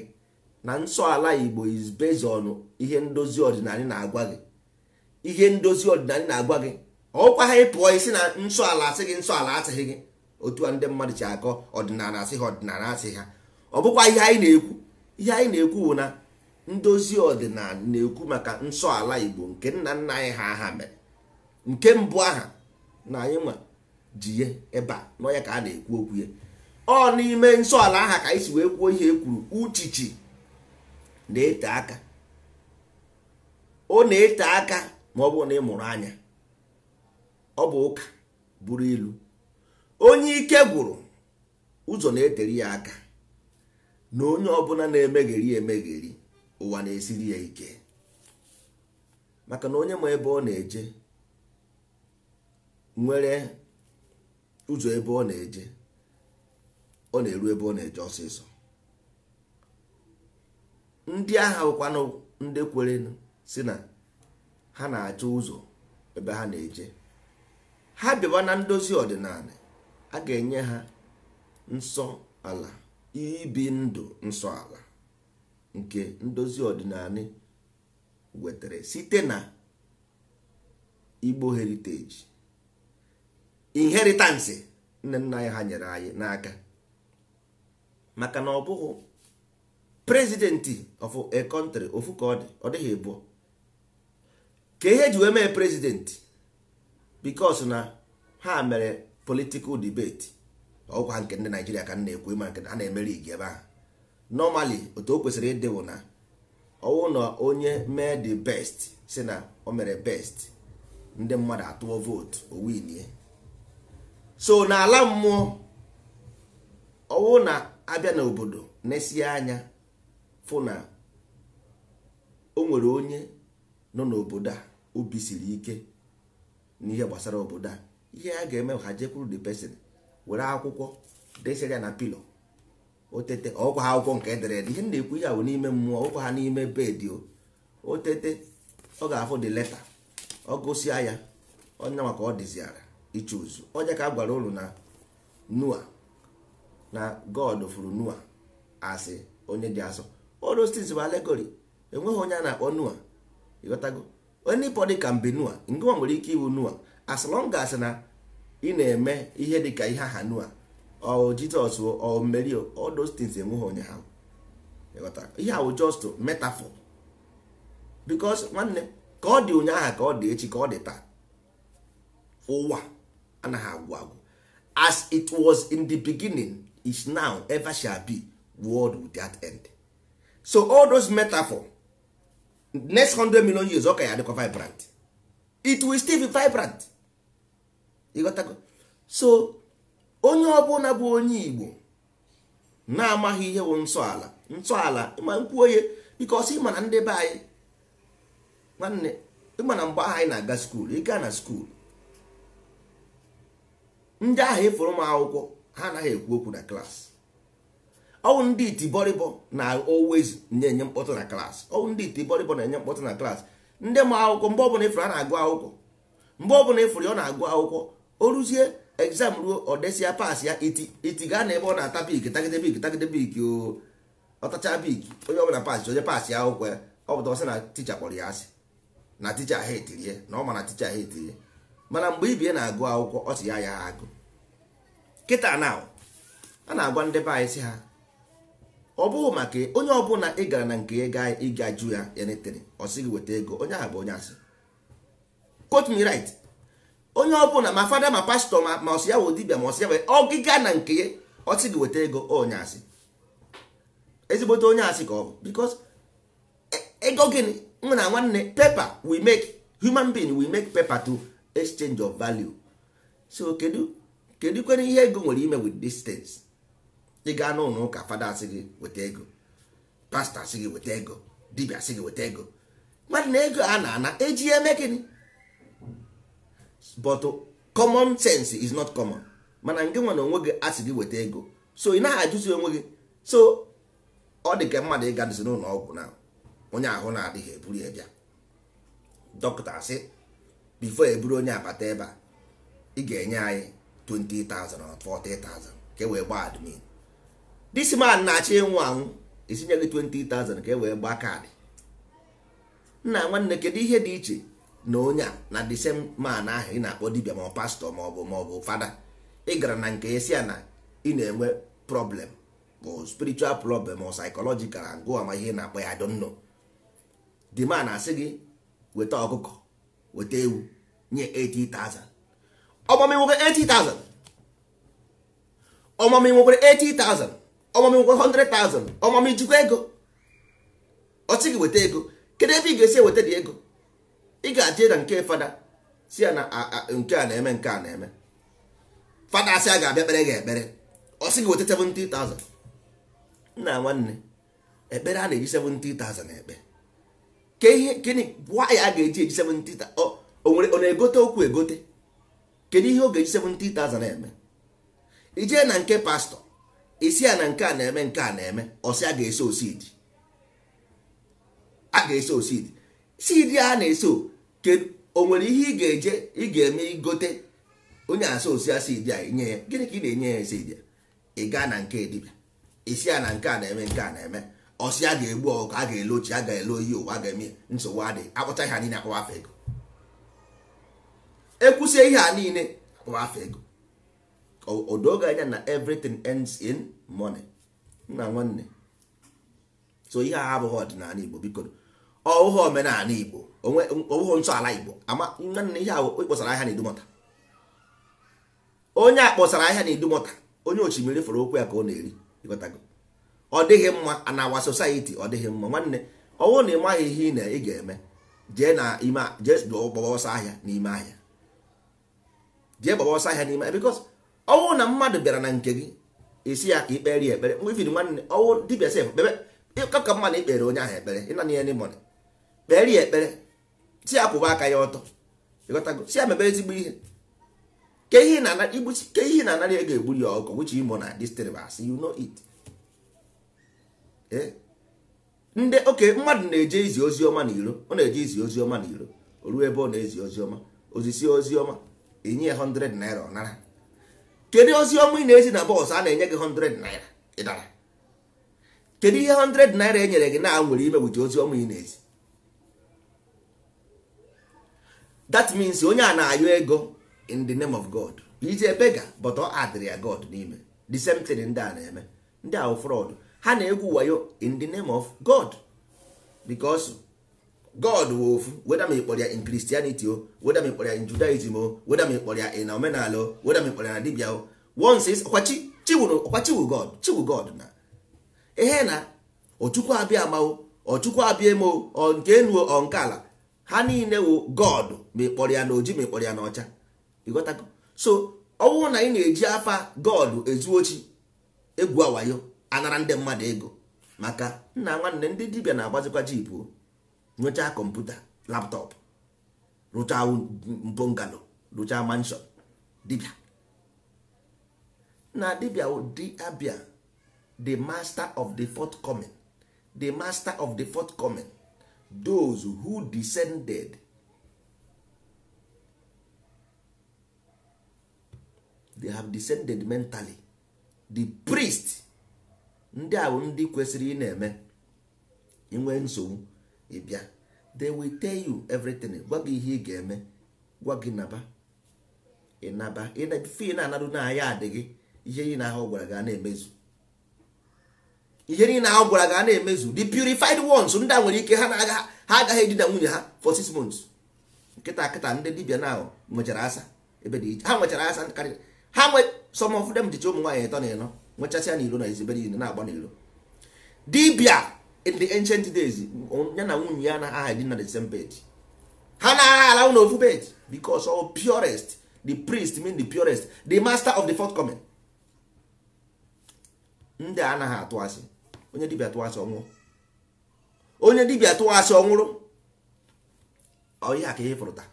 na nsọala igbo is based on ihe ndozi ọdịnala na-agwa gị ihe ndozi ọdịnala na-agwa gị ọkwa ha ịpụọ isi na nsọala asị gị nsọala asịghị gị otu a ndị mmadụ ji akọ ọdịnala asị ha ọdịnala asị ha ọ bụkwa ihe anyị na-ekwu ihe anyị na-ekwu bụ na ndozi ọdịnala na-ekwu maka nsọ ala igbo nke nna nna anyị ha aha mere nke mbụ aha na anyị nwa ji ya ebe a n'ọnya ka a na-ekwu okwu ya ọ n'ime nsọ ala aha ka anyị si wee kwuo ihe e kwuru uchichi na-ete aka ọ na-ete aka ma ọ bụ na ị mụrụ anya ọ bụ ụka buru ilu onye ike gwụrụ ụzọ na-etere ya aka na onye ọbụla na-emegheri emegheri ụwa na-esiri ya ike maka na onye ma ebe ọ na-eje nwere ụzọ ebe ọ na-eje ọ na-eru ebe ọ na-eje ọsịsọ ndị agha bụkwanụ ndị kwerenụ si na ha na-achọ ụzọ ebe ha na-eje ha bịawa na ndozi ọdịnala a ga-enye ha nsọ ala ibi ndụ nsọ ala nke ndozi ọdịnala wetara site na igbo heritage inheritance nne nna anyị ha nyere anyị n'aka maka na ọ bụghị prezidenti of a country ofu ka ọ dị ọ dịghị abụọ ka ihe ji wee mee prezidenti because na ha mere political debate ọgwa nke ndị naijiria ka m na-ekwu ma nke a na-emeri igi ebe ahụ nọmali otu o kwesịrị ịdị na ọwụ na onye mee the best si na o mere best ndị mmadụ atụọ vootu o winie so n'ala mmụọ ọwụ na abịa n'obodo nesie anya fụ na o nwere onye nọ n'obodo a obi siri ike n'ihe gbasara obodo a ihe a ga-eme ha jekwuru the pesin. were akwụkwọ desere ya na pilo otete ọkwa ha akwụkwọ nke edere ihe na-ekwu ya bụ n'ime mmụọ ọkwa ha n'ime bedị otete ọ ga-afụ dị leta ọ gụsịa ya ọnya maka ọ dịziara iche ozu onye ka a gwara unu na nua na god furu nua asị onye dị asọ olostins bụ alegori enweghị onye a na-akpọ nua ịghọtago onye pọdị ka mbe nua ngụwa nwere ike iwu nua as long as na ị na-eme ihe dị ka ihe aha nua ọ jizọs ọ mmeri all those things enweghị onye ha ihe ahụ just metaphor because nwanne ka ọ dị ụnyaahụ ka ọ dị echi ka ọ dị taa ụwa anaghị agwụ agwụ as it was in the beginning is now ever shall be world without end so all those metaphor next 100 million years ọ ka ya dịkwa vibrant it will still be vibrant ịghọtago so onye ọbụla bụ onye igbo na-amaghị ihe bụ nsọala nsọala ịma nkwuo ihe bikos ịma na ndị be anyị nwanne ịma na mgbe ahụ anyị na-aga skuulu ịga na skuulu ndị ahụ ịfụrụ m akwụkwọ ha anaghị ekwu okwu na klaasị ọwụ ndị itibọrịbọ na always na-enye mkpọtụ na klaasị ọwụ ndị itibọrịbọ na-enye mkpọtụ na klaasị ndị ma akwụkwọ mgbe ọbụla ịfụrụ ha na-agụ akwụkwọ mgbe ọbụla ịfụrụ ya ọ na-agụ akwụkwọ o ruzie exam ruo ọ desia pas ya iti iti gaa na ebe ọ na-ata bik tagide bik tagide bik ọtacha bik onye ọbụla pas onye pas ya akwụkwọ ya ọ bụta ọsị na ticha kpọrọ ya asị na ticha ha etirie na ọ ma na ticha ha etirie mana mgbe ibie na-agụ akwụkwọ ọ sị ya ya agụ kịta na a na-agwa ndị be anyị sị ha ọ bụghị maka onye ọbụla ị gara na nke ga anyị ịga ju ya ya netere ọ sịghị gị weta ego onye ahụ bụ onye asị quote me right onye ọbụla ma fada ma pastọ ma ma ọsị ya wụ dibia ma ọsị ya wee ọgịga na nke ya ọsị gị weta ego onye asị ezigbote onye asị ka ọ bụ bikos e, ego gịnị nwa na nwanne pepa we make human being we make paper to exchange of value so kedu kedu kwere ihe ego nwere ime with distance ị n'ụlọ ụka fada asị gị weta ego pastọ asị gị weta ego dibia asị gị weta ego mmadụ na ego a na-ana eji eme gịnị but common sense is not common mana nke nwere na onwe gị asị gị weta ego so ị naghị ajụzi onwe gị so ọ dị ka mmadụ ịga dịzi n'ụlọ ọgwụ na onye ahụ na-adịghị eburu ya bịa dọkịta sị bifo eburu onye abata ebe a ị ga-enye anyị 20,000 or 40,000 ka e wee gbaa admin this man na-achọ ịnwụ anwụ esinye gị t20 ka e wee gbaa kaadị nna nwanne kedu ihe dị iche na onye a na the same man ahụ ị na-akpọ dibia ma ọ pastọ ma ọ bụ ma fada ị gara na nke esi na ị na-enwe problem bụ spiritual problem ọ psychological ngụ ama ihe na-akpọ ya don't know the man asị gị weta ọkụkọ weta ewu nye 80,000 ọmami nwoke 80,000 ọmami 80,000 ọmami nwoke 100,000 ọmami jikwa ego ọ weta ego kedu ebe ị ga-esi eweta dị ego ị ga-achị na nke fada si ya na nke a na-eme nke a na-eme fada si a ga-abịa kpere gị ekpere ọ sị gị weta 70,000 na nwanne ekpere a na-eji 70,000 na ekpe ka ihe gịnị gwa ya a ga-eji eji 70,000 ọ na-egote okwu egote kedu ihe ọ ga-eji na eme ijee na nke pastọ isi ya na nke a na-eme nke a na-eme ọsị a ga-eso osidi a ga-eso osidi sidi a na-eso o nwere ihe ị ga-eje ị ga-eme igote onye asa osi ịdị idia nye ya gịnị ka ị na-enye ya esi idia ị gaa na nke dibịa isi ya na nke a na-eme nke a na-eme ọsị a ga-egbu ọkụ a ga-ele ochi a ga-ele oyi ụwa ga-eme nsogbu adị akpụcha ihe niile akpụwa afọ ego ekwusie ihe a niile akpụwa afọ ego e odoge anya na everything ends in money nna nwanne so ihe a abụghị ọdịnala Igbo biko ọhụhụ omenala igbo ọhụhụ ntọala igbo ama nwanne ihe ahụ ịkpọsara ahịa na-edumọta onye a kpọsara ahịa na-edumọta onye ochimiri fọrọ okwu ya ka ọ na-eri ịghọtago ọ dịghị mma a na awa society ọ dịghị mma nwanne ọwụ na ịmaghị ihe ị na ị ga-eme jee na ime jee gbaba ọsọ ahịa n'ime ahịa jee gbaba ọsọ ahịa n'ime ahịa because ọwụ na mmadụ bịara na nke gị isi ya ka ikpere ya ekpere mgbe ifiri e nwanne ọwụ dibịa sef kpebe ka mma na ikpere onye ahụ ekpere ịna ya n'ịmọdụ kpere ya ekpere si ya kwụba aka ya ọtọ si ya mebe ezigbo ihe ke ihe na-anara ya egburi ya ọkụ which imo na disturbance you know it eh? ndị oke mmadụ na-eje izi ozi ọma na iro ọ na-eje izi ozi ọma na iro o ruo ebe ọ na-ezi ozi ọma ozisie ozi ọma enye ya 100 naira ọnara. kedu ozi ọma ị na-ezi na bọọsụ a na-enye gị 100 naira ịdara kedu ihe 100 naira e nyere gị na nwere ime wuji ozi ọma ị na-ezi that means onye a na-ayọ ego in the name of god ije bega but ọ adịrị ya god n'ime the same thing ndị a na-eme ndị ahụ fraud ha na-egwu wayo in the name of god because god wụ ofu weda ma ịkpọrọ ya in christianity o weda ma ịkpọrọ ya in judaism o weda ma ịkpọrọ ya in omenala o weda ma ịkpọrọ ya na dibia o once is ọkwa chiwu god chiwu god na ihe na ọchukwu abịa ama o ọchukwu abịa emo o nke enu ọ nke ala ha niile wụ god mekpọrọ ya na oji mekpọrọ ya na ọcha so ọ bụrụ na ị na-eji afa god ezu ochi egwu awayo anara ndị mmadụ ego maka nna nwanne ndị dibia na-agbazikwa jipu nyochaa kọmputa laptọpụ rụchaa mbongalo rụchaa manshọn dibia. na dibịa diabia the master of the forthcoming the master of the forthcoming those who descended they have descended mentally the priest ndị a bụ ndị kwesịrị ị na-eme inwe nsogbu ịbịa they will tell you everything gwa gị ihe ị ga-eme gwa gị naba ịnaba fi na-anadụ na ya adịghị ihe ị na-ahụ gwara gị a na-emezu ihe niile a gwara ga na-emezu the purified ones ndị a nwere ike ha na-aga ha agaghị edina nwunye ha for six months nkịta nkịta ndị dibia na nwechara asa ebe dị ha nwechara asa karịrị ha nwe some of them dịcha ụmụ nwaanyị ịtọ na ịnọ nwechasịa n'ilo na ezibere niile na-agba n'ilo dibia in the ancient days ya na nwunye ya na aha edina the same bed ha na-agha ala na ofu bed because all purest the priest mean the purest the master of the forthcoming ndị anaghị atụ asị onye dibia tụọ asị ọnwụrụ onye dibia tụọ asị ọnwụrụ ọhịa ka ihe fụrụta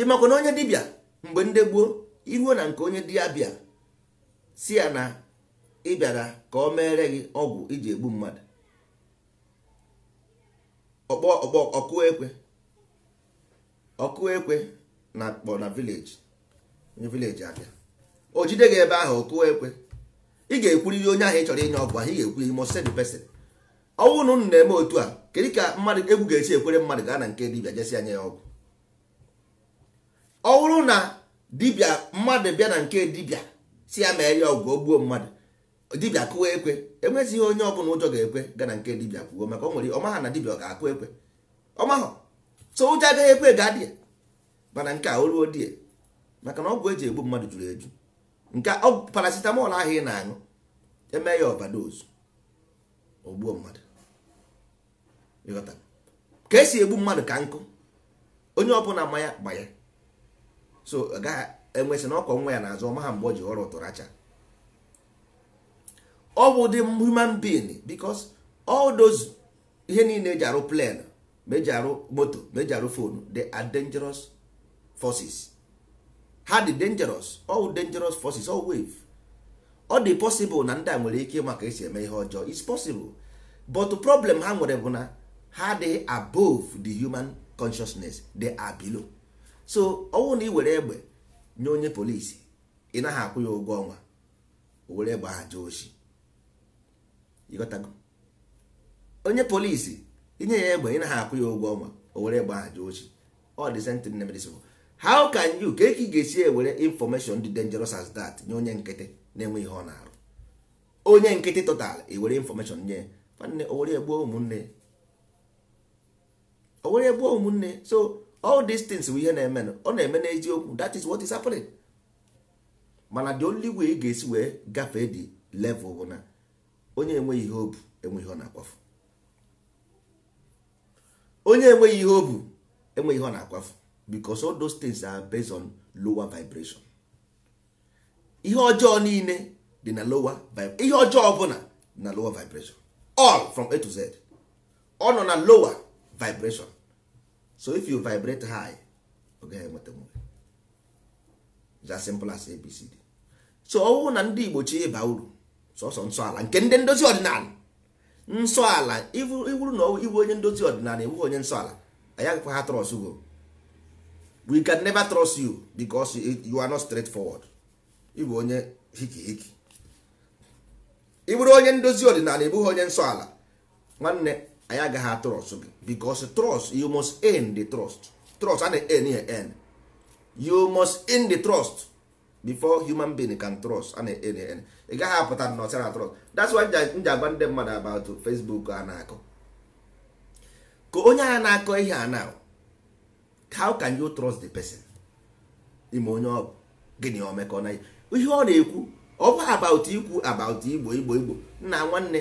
ịmakwa na onye dibia mgbe ndị gboo iruo na nke onye dibịa bịa si ya na ị bịara ka ọ meere gị ọgwụ iji egbu mmadụ ọkpọ ọkụ ekwe ọkụ ekwe na akpọ na vileji onye vileji abịa o jide gị ebe ahụ ọkụ ekwe ị ga-ekwuriri onye ahụ ị chọrọ inye ọgwụ ahụ ị ga-ekwuriri mọ send person ọnwụ na na-eme otu a kedu ka mmadụ egwu ga-esi ekwere mmadụ gaa na nke dibịa jesi anya ya ọgwụ ọ na dibịa mmadụ bịa na nke dibịa si ya mere ya ọgwụ gbuo mmadụ dibịa kụwa ekwe enwezighị onye ọbụla ụjọ ga-ekwe gaa na nke dibịa kwuo maka ọ nwere ọmaha na dibịa ọ ga-akụ ekwe ọmahọ so ụjọ agaghị ekwe ga dị mana nke a o ruo di e. maka na ọgwụ eji egbu mmadụ juru eju nke ọgwụ oh, paracetamol ahụ ị na-aṅụ eme ya overdose ogbuo mmadụ ka esi egbu mmadụ ka nkụ onye ọbụla mmanya gbanye so agaghị enwesị na ọkọ nwa ya na-azụ ọma ha mgbe o ji ọrụ ụtụrụ acha ọ bụ dị human being because all those ihe niile eji arụ plane ma eji arụ moto ma eji arụ fonu they are dangerous forces ha dị dangerous all dangerous forces all wave ọ dị possible na ndị a nwere ike maka esi eme ihe ọjọọ is possible but problem ha nwere bụ na ha dị above the human consciousness they are below so ọnwụ na ị were egbe nye onye polisi ị naghị akwụ ya ụgwọ ọnwa o were egbe ha jee oshi ịghọtago onye polisi inye ya egbe ị naghị akwụ ya ụgwọ ọnwa o were egbe ha jee oshi ọ dị sentin nemedisibụl how can you ka ị ga-esi ewere information dị dangerous as that nye onye nkịtị na-enwe ihe ọ na-arụ onye nkịtị total ewere information nye nwanne owere egbuo ụmụnne owere egbuo ụmụnne so all these things bụ ihe na-eme ọ na-eme n'eziokwu that is what is happening mana the only way ị ga-esi wee gafee the level bụ na onye enweghị ihe obu enweghị ihe ọ na-akwafu onye enweghị ihe obu enweghị ihe ọ na-akwafu because all those things are based on lower vibration ihe ọjọọ niile dị na lower ihe ọjọọ ọbụla na lower vibration all from a to z ọ nọ na lower vibration so if you vibrate high ọ gaghị enweta nwere it's as simple as abcd so ọ na ndị igbo chi ịba uru sọsọ nsọ ala nke ndị ndozi ọdịnala nsọ ala iwuru na iwu onye ndozi ọdịnala ewughị onye nsọ ala anyị agakwa ha trọs ugoro we can never trust you because you are not straightforward ịbụ onye hiki hiki ị bụrụ onye ndozi ọdịnala ị onye nsọ ala nwanne anyị agaghị atụrụ ọsọ gị because trust you must end the trust trust a na-end ya end you must end the trust before human being can trust a na-end ya end ị gaghị apụta na ọsara trust that's why m ji agwa ndị mmadụ about Facebook a na-akọ ka onye agha na-akọ ihe a na how can you trust the person ime onye ọ gịnị omekọ na ihe ọ na-ekwu ọ bụ about ikwu about igbo igbo igbo nna nwanne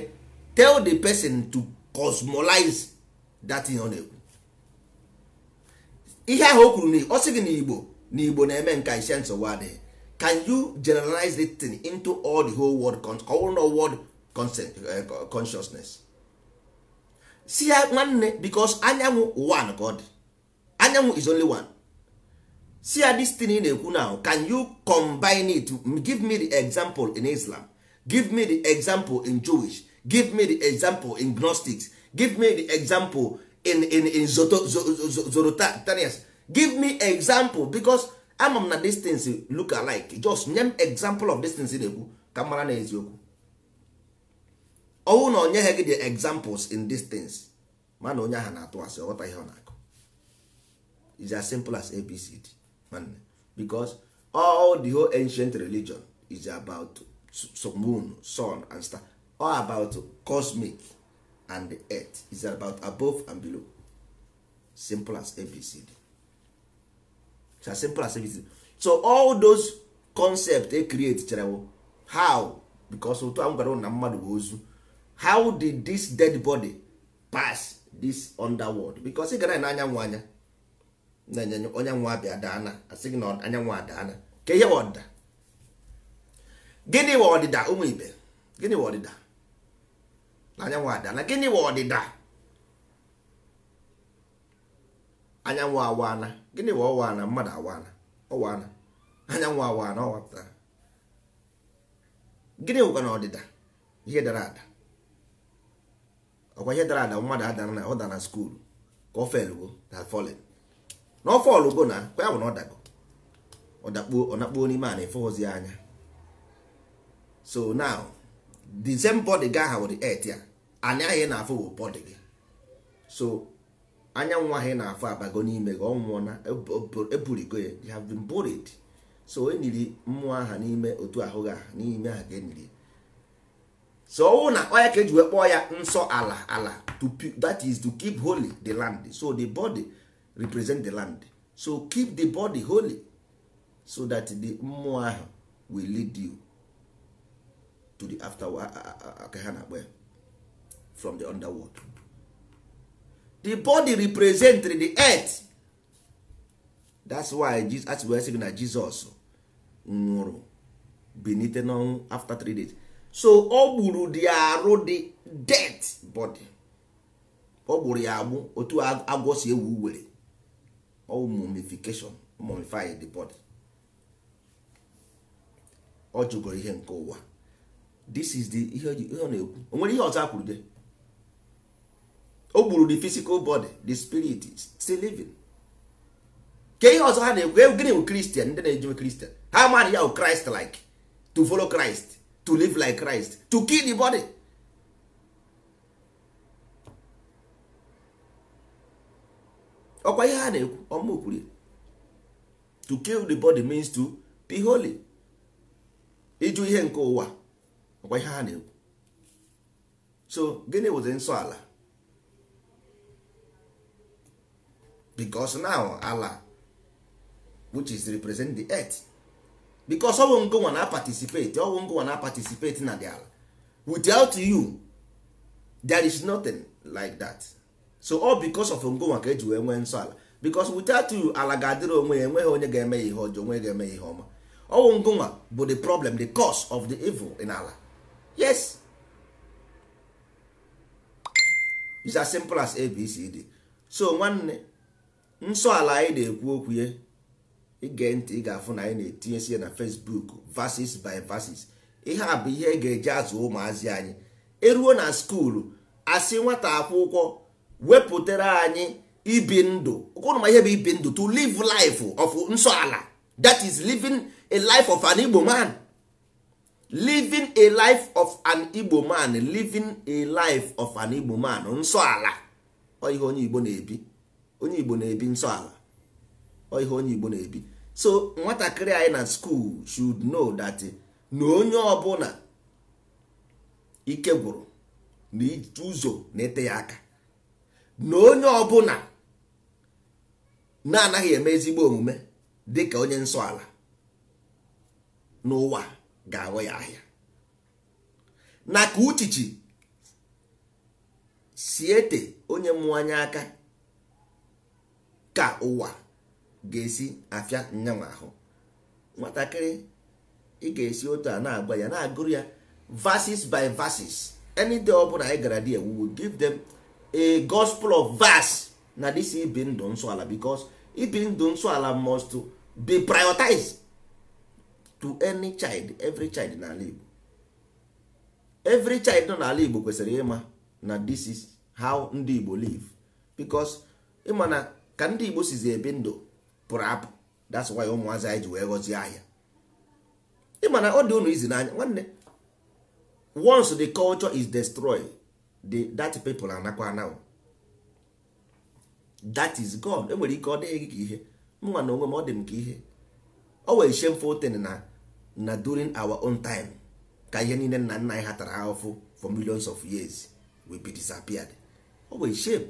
tell the person to cosmolize that ihe ọ na-ekwu ihe ahụ o kwuru ọ sị gị na igbo na igbo na-eme nka isi nsogbu adịghị can you generalize the thing into all the whole world ka ọ world eh, consciousness si ya nwanne because anyanwụ ụwa ka ọ dị anyanwụ is only one see ya this ị na-ekwu now can you combine it give me the example in Islam give me the example in Jewish give me the example in Gnostics give me the example in in in Zoroastrians give me example because ama m na these things look alike just nye m example of these things ị na-ekwu ka mara na eziokwu ọnwụ na ha gị the examples in these things mana onye ha na-atụ asị ọ ihe ọ na is as simple as abcd man, because all the whole ancient religion is about moon sun and star all about cosmic and the earth is about above and below simple as abcd it's as simple as abcd so all those concepts they create chere how because otu a na gwara ụna mmadụ bụ ozu how did this dead body pass this underworld because ị gara n'anyanwụ anya na-enye onyanwụ abịa daana asị gị na anyanwụ adaana ka ihe ọdịda gịnị bụ ọdịda ụmụ ibe gịnị bụ ọdịda na anyanwụ adaana gịnị bụ ọdịda anyanwụ awaana gịnị bụ ọwaana mmadụ awaana ọwaana anyanwụ awaana ọwapụtara gịnị bụkwa na ọdịda ihe dara ada ọkwa ihe dara ada mmadụ adara na ọ dara na skuulu ka ọ felgo na folin na ọ fọlụ go na kwa ya bụ na ọ dago ọ nakpuo n'ime a na-efeghọzi anya so now the same body ga ha wụrụ et ya anya anyị na-afụ bụ body gị so anyanwụ anyị na-afụ abago n'ime gị ọ nwụọ na eburigo e e ya you have been buried so eniri mmụọ aha n'ime otu ahụ gị n'ime aha e ka eniri so ọwụ na onye ka eji wee kpọọ ya nsọ ala ala to that is to keep holy the land so the body represent the land so keep the body holy so that the mmụọ ahụ will lead you to the after ka ha na-akpọ ya from the underworld the body represent the earth that's why Jesus, we why sị na Jesus nwụrụ benite n'ọnwụ after three days so ọ gburu dị arụ the dead body ọ gburu ya agbụ otu agwọ si ewu were All mummification mummify the body ọ jụgoro ihe nke ụwa this is the ihe ọ na-ekwu onwere ihe ọzọ akwuru de o gburu the physical body the spirit still living ke ihe ọzọ ha na-ekwu e, gịnị bụ kristian ndị na kristian ha amaghị ya bụ christ like to follow christ to live like christ to kill the body ọkwa ihe ha na-ekwu ọmụ kwuru to kill the body means to be holy ịjụ ihe nke ụwa ọkwa ihe ha na-ekwu so gịnị wụzi nsọ ala because now ala which is represent the earth because ọwụ ngụnwa na participate ọwụ ngụnwa na participate na the ala without you there is nothing like that so all because of ngonwa ka eji wee nwee nsọ ala because without you ala ga-adịrị onwe ya enweghị onye ga-eme ya ihe ọjọọ onwe ga-eme ya ihe ọma ọnwụ ngonwa bụ the problem the cause of the evil in ala yes is as simple as abcd so nwanne nsọ ala anyị na-ekwu okwu ya ige ntị ị ga-afụ na anyị na-etinyesi ya na facebook vasis by vasis ihe a bụ ihe e ga-eji azụ ụmụazị anyị eruo na skuulu asị nwata akwụkwọ wepụtara anyị ibi ndụ ụkwụrụ ma ihe bụ ibi ndụ to live life of nsọ ala that is living a life of an igbo man living a life of an igbo man living a life of an igbo man nsọ ala ọ ihe onye igbo na-ebi onye igbo na-ebi nsọ ala ọ ihe onye igbo na-ebi so nwatakịrị anyị na skool should know that na onye ọbụla ike gwụrụ na ụzọ na-ete ya aka na onye ọbụla na-anaghị eme ezigbo omume dịka onye nsọala ala n'ụwa ga-aghọ ya ahịa na ka uchichi siete ete onye mmụọ aka ka ụwa ga-esi afịa nyanwa ahụ nwatakịrị ị ga-esi otu a na-agba ya na-agụrụ ya verses by verses any day ọ bụla anyị gara di ewu give a gospel of verse na this ibi ndụ nsọ ala because ibi ndụ nsọ ala must be prioritized to any child every child na-ala Igbo every child nọ n'ala Igbo kwesịrị ịma na this is how ndị Igbo live because ịma na ka ndị Igbo sizi ebi ndụ pụrụ apụ that's why ụmụazị anyị ji wee gọzie ahịa ịma na ọ dị unu izi n'anya nwanne once the culture is destroyed the that people anakwa now. that is God enwere ike ọ dịghị ka ihe mma na onwe m ọ dị m ka ihe ọ wee shameful thing na na during our own time ka ihe niile nna nna anyị ha tara ahụfụ for millions of years we be disappeared ọ wee shame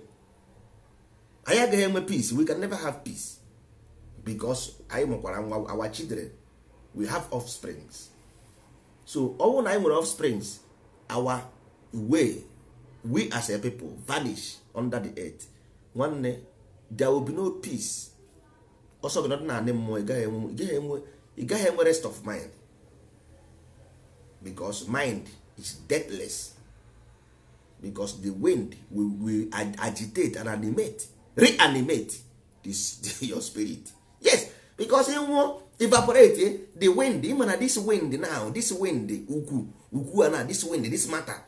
anyị agaghị enwe peace we can never have peace because anyị mụkwara nwa our children we have offsprings so ọ na anyị nwere offsprings our way we as a pipo vanish under the earth nwanne there will be no peace ọsọ gị nọdụ anị mmụọ ị gaghị enwe rest of mind because mind is deathless because the wind will, will agitate and animate reanimate this, your spirit yes because ịnwụọ evaporate eh? the wind ịma na this wind now this wind ukwu ukwu na this wind this matter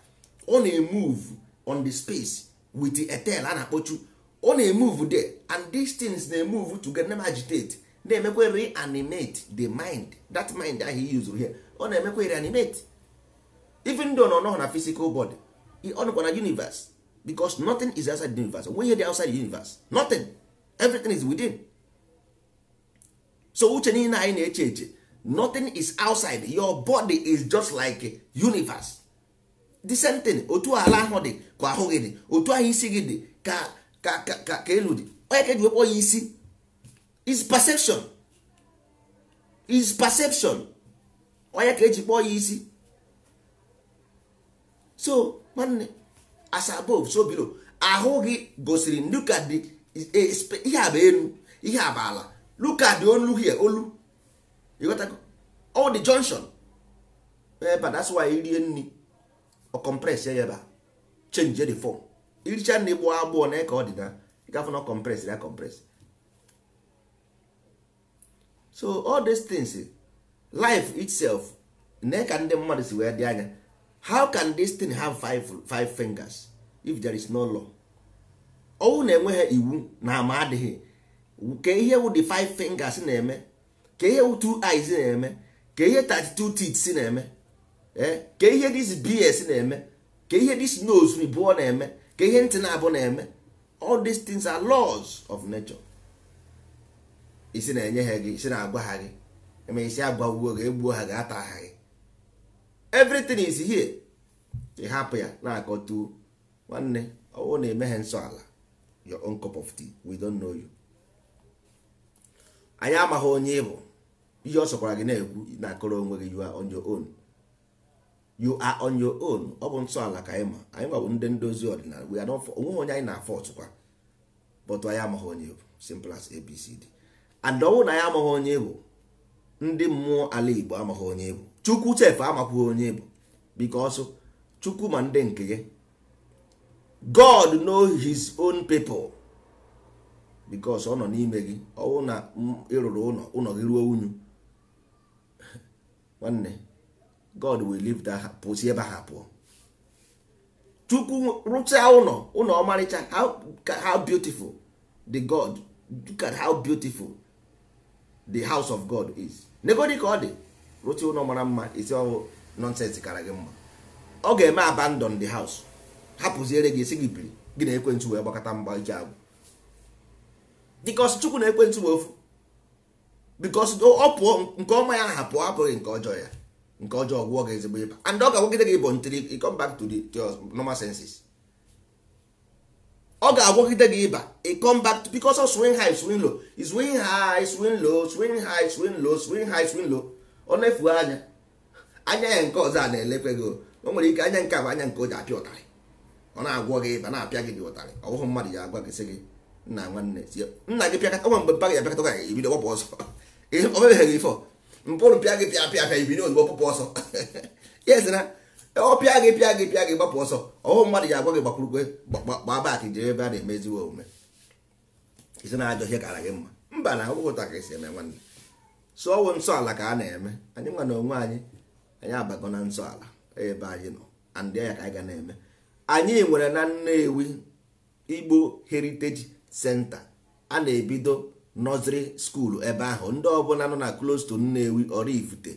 ọ na-emove on the space with the etel a na-akpọchu ọ na-emove there and these things na-emove get na agitate na-emekwa reanimate the mind that mind ahụ he used here ọ na-emekwa reanimate even though nọ nọ na physical body ọ nọkwa na universe because nothing is outside the universe onwe di outside the universe nothing everything is within so uche niile anyị na-eche eche nothing is outside your body is just like universe the same thing otu ala ahụ dị ka ahụ gị dị otu ahụ isi gị dị ka ka ka elu dị onye ka eji wekpọ ya isi is perception is perception onye ka eji kpọọ ya isi so nwanne as above so below ahụ gị gosiri look at the e, ihe a bụ elu ihe a bụ ala look at the olu here olu ịghọtago all the junction ebe that's why rie nri ọ compress ya ebe a change the form iricha na ịgbụ agbụọ na ka ọ dị na ịgafụ na compress na compress so all these things life itself na ka ndị mmadụ si wee dị anya how can this thing have five, five fingers if there is no law ọnwụ na-enweghị iwu na ama adịghị ka ihe wụ the five fingers na-eme ka ihe wụ two eyes na-eme ka ihe 32 teeth na-eme Eh? ka ihe dis bs na-eme ka ihe dis nose ribụọ na-eme ka ihe ntị na-abụ na-eme all these things are laws of nature isi na-enye ha gị isi na-agwa ha gị eme isi agwagbuo gị egbuo ha gị, ata ha gị everything is here ị hapụ ya na-akọtuo nwanne ọwụ na-eme ha nsọ ala your own cup of tea we don't know you anyị amaghị onye ị bụ ihe ọ sọkwara gị na-ekwu na akọrọ onwe gị you on you are on your own ọ bụ nsọ ka anyị ma anyị nwa bụ ndị ndozi ọdịnala onweghị onye anyị na-afọ ọtụkwa but anyị amaghị onye bụ simple as abcd and ọnwụ na anyị amaghị onye bụ ndị mmụọ ala igbo amaghị onye bụ chukwu chef amakwụghị onye bụ because chukwu ma ndị nke gị god know his own people because ọ nọ n'ime gị ọnwụ na ịrụrụ ụlọ ụlọ gị ruo unyu nwanne god will leave that pụzi ebe ha pụọ chukwu rụchaa ụlọ ụlọ ọmarịcha how beautiful the god look at how beautiful the house of god is negodi ka ọ dị rụchaa ụlọ mara mma isi ọwụ nonsense kara gị mma ọ ga-eme abandon the house hapụziere gị esi gị biri gị na ekwentị wee gbakọta mgba iji agwụ dịkọs chukwu na ekwentị wee ofu bikọs ọ pụọ nke ọma ya ha pụọ hapụghị nke ọjọọ ya nke ọjọọ gwụọ gị ezigbo ịba and ọ ga-agwagide gị bụ ntiri, you come back to the normal senses ọ ga-agwagide gị ịba ị come back to because of swing high swing low swing high swing low swing high swing low swing high swing low ọ na-efu anya anya ya nke ọzọ a na-elekwe gị o nwere ike anya nke a bụ anya nke o ji apịa ụtarị ọ na-agwọ gị ịba na-apịa gị dị ụtarị ọwụhụ mmadụ ya agwa gị sị gị nna nwanne nna gị pịakọnwe mgbe mpa gị abịakọta gị ebido gbapụ ọzọ o mebeghị gị mpụrụ pịa gị pịa pịa pịa ibiri ozugbo pụpụ ọsọ ya ezi na ọ pịa gị pịa gị pịa gị gbapụ ọsọ ọhụ mmadụ ya agwa gị gbakwurukwe gbaa baakị jere ebe a na-emeziwe omume isi na ajọ ihe kara gị mma mba na ọgwụgwụta ka esi eme nwanne so ọwụ nsọ ala ka a na-eme anyị nwa na onwe anyị anyị abago na nsọala ala ebe anyị nọ andị ya ka anyị ga na-eme anyị nwere na Nnewi Igbo heriteji senta a na-ebido nọziri skuulu ebe ahụ ndị ọbụla nọ na na-ewi Nnewi Oraifite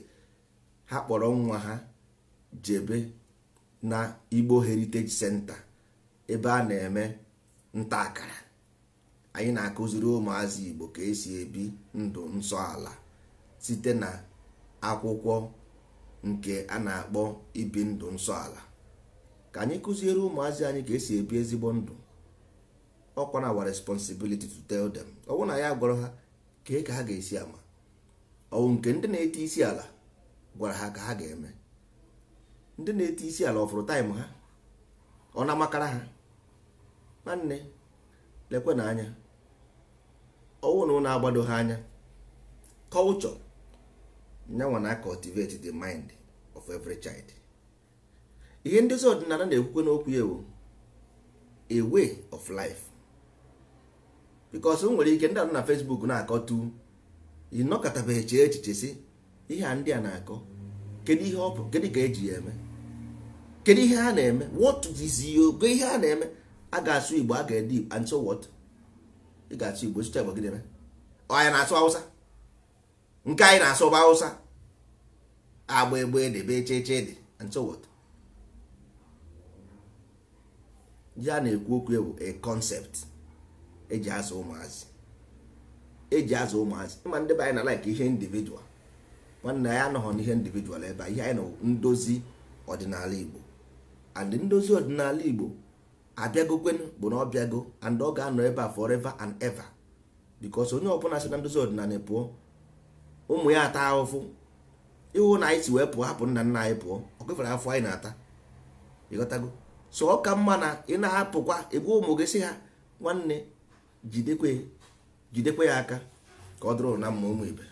ha kpọrọ nwa ha jebe na Igbo Heritage Center ebe a na-eme nta akara anyị na-akụziri ụmụazị Igbo ka esi ebi ndụ nsọ ala site na akwụkwọ nke a na-akpọ ibi ndụ nsọ ala ka anyị kụziere ụmụazị anyị ka esi ebi ezigbo ndụ ọkwa na awa responsibility to tell them ọwụ na ya gwara ha kee ka ha ga-esi ama ọwụ nke ndị na-ete isi ala gwara ha ka ha ga-eme ndị na-ete isi ala ọfụrụ taịm ha ọ na-amakara ha nwanne lekwe na anya ọwụ na ụlọ agbado ha anya kọlchọ nyanwa na cultivate the mind of every child ihe ndezi ọdịnala na-ekwukwe n'okwu ya a way of life bikos nwere ike ndị anọ na fesbuk na-akọtu akọ ịnọkọtabeghị chee echiche si ihe a ndị a na-akọ kedu ihe ọ bụ kedu ka eji ya eme kedu ihe a na-eme what is ogo ihe a na-eme a ga-asụ igbo a ga-ede and so what ị ga-asụ igbo sụcha igbo gị na-eme anyị na-asụ awụsa nke anyị na-asụ bụ hausa agba egbe debe cheche dị and so what a na-ekwu okwu ewu a concept eji azụ ụmụazị eji azụ ụmụazị ịma ndị be anyị na like ihe individual nwanne anyị anọghọ n'ihe individual ebe ihe anyị na ndozi ọdịnala Igbo and ndozi ọdịnala Igbo abịagokwenụ bụ na ọbịago and ọ ga-anọ ebe a forever and ever because onye ọbụla si na ndozi ọdịnala pụọ ụmụ ya ata ahụfụ ịhụ na anyị si wee pụọ hapụ nna nna anyị pụọ ọ afọ anyị na-ata ịghọtago so ọ ka mma na ị na-ahapụkwa egbu ụmụ gị si ha nwanne jidekwe jidekwe ya aka ka ọ dụrụ na mma ụmụ ibe